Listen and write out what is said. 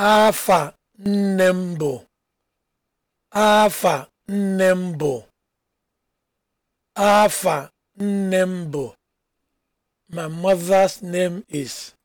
afa nne m bụ afa nne m bụ afa nne m bụ my mother's name is